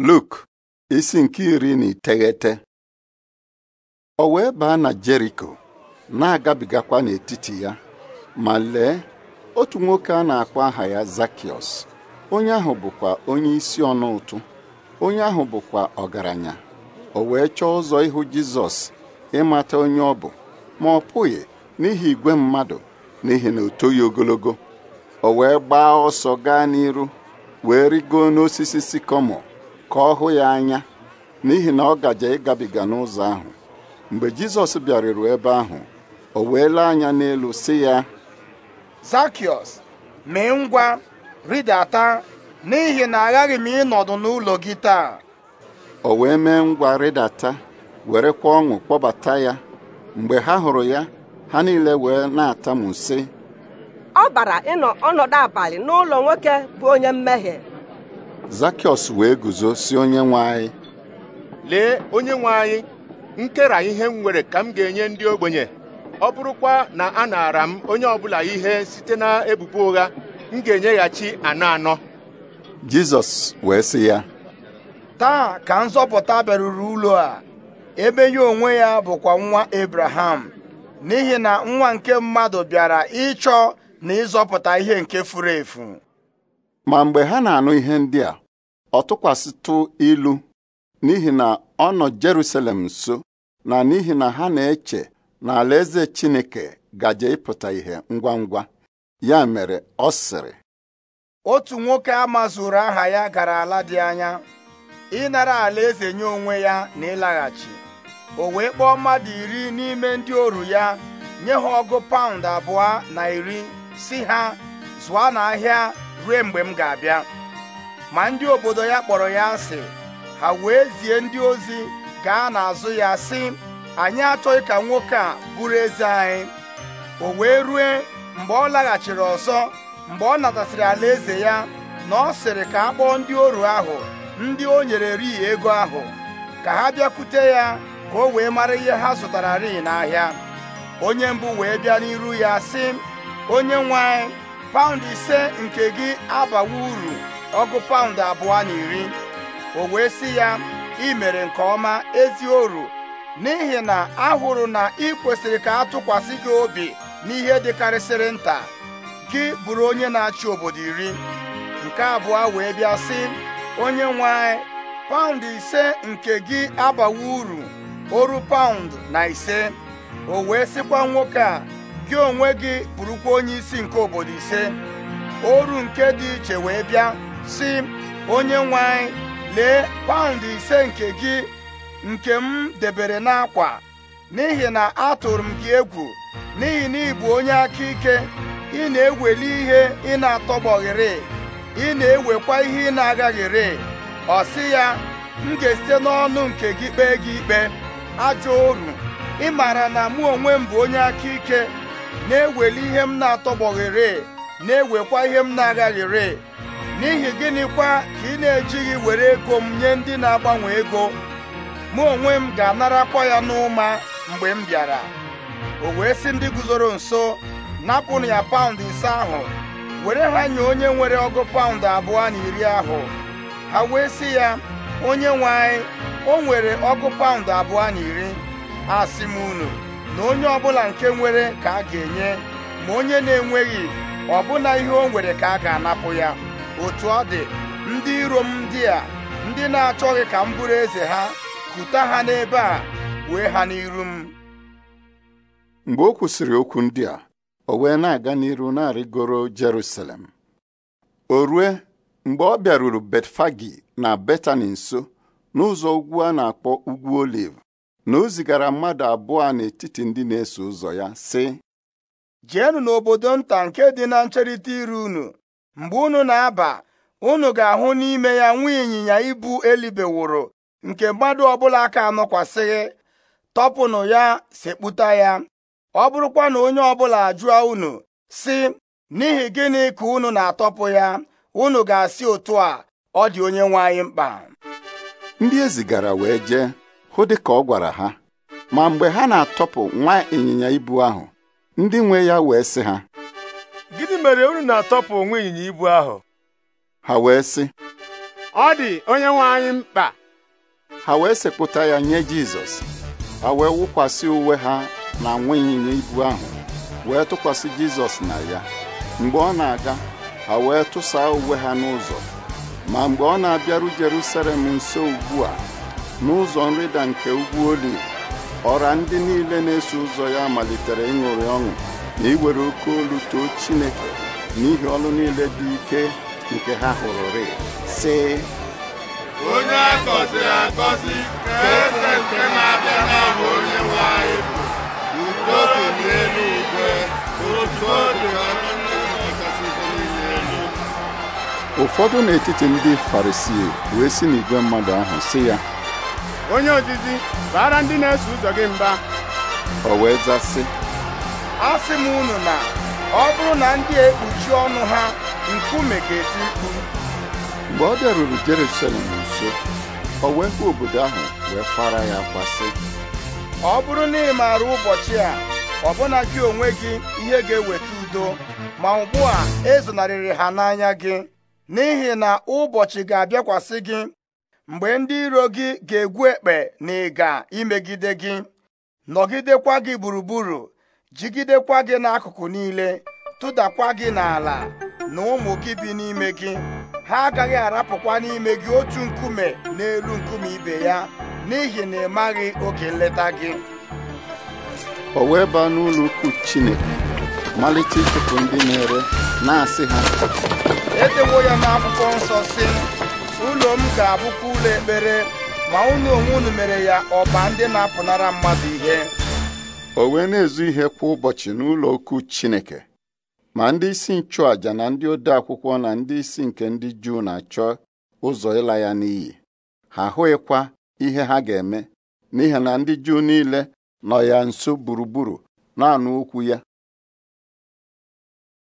Luk isi nke iri na iteghete o wee baa na Jeriko na-agabigakwa n'etiti ya ma lee otu nwoke a na-akpọ aha ya zakios onye ahụ bụkwa onye isi ọnụ ụtụ onye ahụ bụkwa ọgaranya o wee chọọ ụzọ ịhụ Jizọs ịmata onye ọ bụ ma ọ pụghị n'ihi igwe mmadụ n'ihi na o ogologo o wee gbaa ọsọ gaa n'iru wee rigo n'osisi sikomo ka ọ hụ ya anya n'ihi na ọ gaje ịgabiga n'ụzọ ahụ mgbe jizọs bịaruru ebe ahụ o wee lee anya n'elu si ya zakiọs mee ngwa rịdata n'ihi na aghaghị m ịnọdụ n'ụlọ gị taa o wee mee ngwa rịdata werekwa ọṅụ kpọbata ya mgbe ha hụrụ ya ha niile wee na ata sị ọ bara ịnọ ọnọdụ abalị n'ụlọ nwoke bụ onye mmehie Zakịọs wee guzo si onye nwe lee onye nwe anyị nkera ihe m nwere ka m ga-enye ndị ogbenye ọ bụrụkwa na a naara m onye ọbụla ihe site na ebubo ụgha m ga-enyeghachi anọ anọ Jizọs wee sị ya taa ka nzọpụta bịaruru ụlọ a ebe ya onwe ya bụkwa nwa ebraham n'ihi na nwa nke mmadụ bịara ịchọ na ịzọpụta ihe nke furu efu ma mgbe ha na-anụ ihe ndị a ọ tụkwasịtụ ilu n'ihi na ọ nọ Jerusalem nso na n'ihi na ha na-eche na alaeze Chineke gaje ịpụta ihe ngwa ngwa ya mere ọ sịrị otu nwoke amazuru aha ya gara ala dị anya ịnara alaeze nye onwe ya na ịlaghachi o wee kpọọ mmadụ iri n'ime ndị oru ya nye ha ọgụ paụnd abụọ na iri si ha zụọ n'ahịa ruo mgbe m ga-abịa ma ndị obodo ya kpọrọ ya asị ha wee zie ndị ozi gaa n'azụ ya sị anyị achọghị ka nwoke a bụrụ eze anyị o wee rue mgbe ọ laghachiri ọzọ mgbe ọ natasịrị alaeze ya na ọ sịrị ka a kpọọ ndị oru ahụ ndị o nyere rii ego ahụ ka ha bịakwute ya ka o wee mara ihe ha zụtara rii n'ahịa onye mbụ wee bịa n'iru ya sị onye nwe anyị paụndụ ise nke gị abawa uru ọgụ paụndụ abụọ na iri o wee sị ya ị mere nke ọma ezi oru n'ihi na ahụrụ na ị kwesịrị ka a tụkwasị gị obi n'ihe dịkarịsịrị nta gị bụrụ onye na-achị obodo iri nke abụọ wee bịa sị onye nwe anyị paụnd ise nke gị abawa uru oru paụnd na ise o wee sịkwa nwoke a gị onwe gị bụrụkwa onye isi nke obodo ise oru nke dị iche wee bịa sị onye nwe anyị lee paụnd ise nke gị nke m debere n'akwa n'ihi na atụrụ m gị egwu n'ihi na ị onye aka ike ị na-eweli ihe ị na-atọgbọghịrị ị na-ewekwa ihe ị na-agaghịrị ọ sị ya m ga-esite n'ọnụ nke gị kpee gị ikpe ajọ oru ị maara na mụ onwe m bụ onye aka ike na-eweli ihe m na-atọgbọghere na-ewekwa ihe m na-agaghere n'ihi gịnịkwa ka ị na-ejighị were ego m nye ndị na-agbanwe ego mụ onwe m ga-anarakwa ya n'ụma mgbe m bịara o wee sị ndị guzoro nso napụnụ ya paụnd ise ahụ were ha nye onye nwere ọgụ paụnd abụọ na iri ahụ ha wee sị ya onye nwe anyị o nwere ọgụ paụnd abụọ na iri asị m unu na onye ọbụla nke nwere ka a ga-enye ma onye na-enweghị ọbụna ihe o nwere ka a ga-anapụ ya otu ọ dị ndị iro m ndị a ndị na-achọghị ka m bụrụ eze ha kuta ha n'ebe a wee ha n'iru m mgbe o kwụsịrị okwu ndị a o wee na-aga n'iru na-arịgoro Jerusalem o rue mgbe ọ bịaruru Betfagi na Betani nso n'ụzọ ugwu a na-akpọ ugwu Olive na o zigara mmadụ abụọ n'etiti ndị na-eso ụzọ ya sị jeenụ n'obodo nta nke dị na ncherịta iru unu mgbe unu na-aba unu ga-ahụ n'ime ya nwa ịnyịnya ibu elibewụrụ nke mmadụ ọbụla aka anọkwasịghị tọpụnụ ya sekpụta ya ọ bụrụkwa na onye ọbụla ajụọ unu sị n'ihi gịnị ka unu na-atọpụ ya unu ga-asị otu a ọ dị onye nwe anyị mkpa ndị e zigara wee jee hụ dịka ọ gwara ha ma mgbe ha na-atọpụ nwa ịnyịnya ibu ahụ ndị nwe ya wee sị ha gịnị mere unu na-atọpụ nwa ịnyịnya ibu ahụ ha wee sị ọ dị onye nwe anyị mkpa ha wee sekpụta ya nye Jizọs ha wee wụkwasị uwe ha na nwa ịnyịnya ibu ahụ wee tụkwasị Jizọs na ya mgbe ọ na-aga ha wee tụsaa uwe ha n'ụzọ ma mgbe ọ na-abịaru Jerusalem nso ugbu a n'ụzọ nrịda nke ugwu oli ọra ndị niile na-eso ụzọ ya malitere ịṅụrị ọṅụ na iwere oke olu too Chineke n'ihi ọlụ niile dị ike nke ha hụrụ hụrụrị sị onye akọziri akọzi ka eze nke na-abịa n'aha onye nwe bụ udo dị n'elu igwe udo dị ụfọdụ n'etiti ndị Farisii wee si n'igwe mmadụ ahụ sị ya onye ozizi baara ndị na-eso ụzọ gị mba o wee zasị asị m unu na ọ bụrụ na ndị ekpuchi ọnụ ha nkume ga-eti mkpu mgbe ọ bịaruru Jerusalem nso o wee hụ obodo ahụ wee kwara ya kwasị ọ bụrụ na ị maara ụbọchị a ọbụna gị onwe gị ihe ga-eweta udo ma ugbu a ezonarịrị ha n'anya gị n'ihi na ụbọchị ga-abịakwasị gị mgbe ndị iro gị ga-egwu ekpe na ịga imegide gị nọgidekwa gị gburugburu jigidekwa gị n'akụkụ niile tụdakwa gị n'ala na ụmụ gị bi n'ime gị ha agaghị arapụkwa n'ime gị otu nkume n'elu nkume ibe ya n'ihi na ị maghị oge nleta gị o wee baa n'ụlọ ukwu Chineke malite ndị na-ere na-asị ha edewo ya n'akwụkwọ nsọ si ụlọ m ga-abụkwa ụlọ ekpere ma ụlọ onwe unu mere ya ọba ndị na-apụnara mmadụ ihe o wee na-ezu ihe kwa ụbọchị n'ụlọ ukwu Chineke ma ndị isi nchụàja na ndị ode akwụkwọ na ndị isi nke ndị Juu na-achọ ụzọ ịla ya n'iyi ha ahụghịkwa ihe ha ga-eme n'ihi na ndị Juu niile nọ ya nso gburugburu na-anụ okwu ya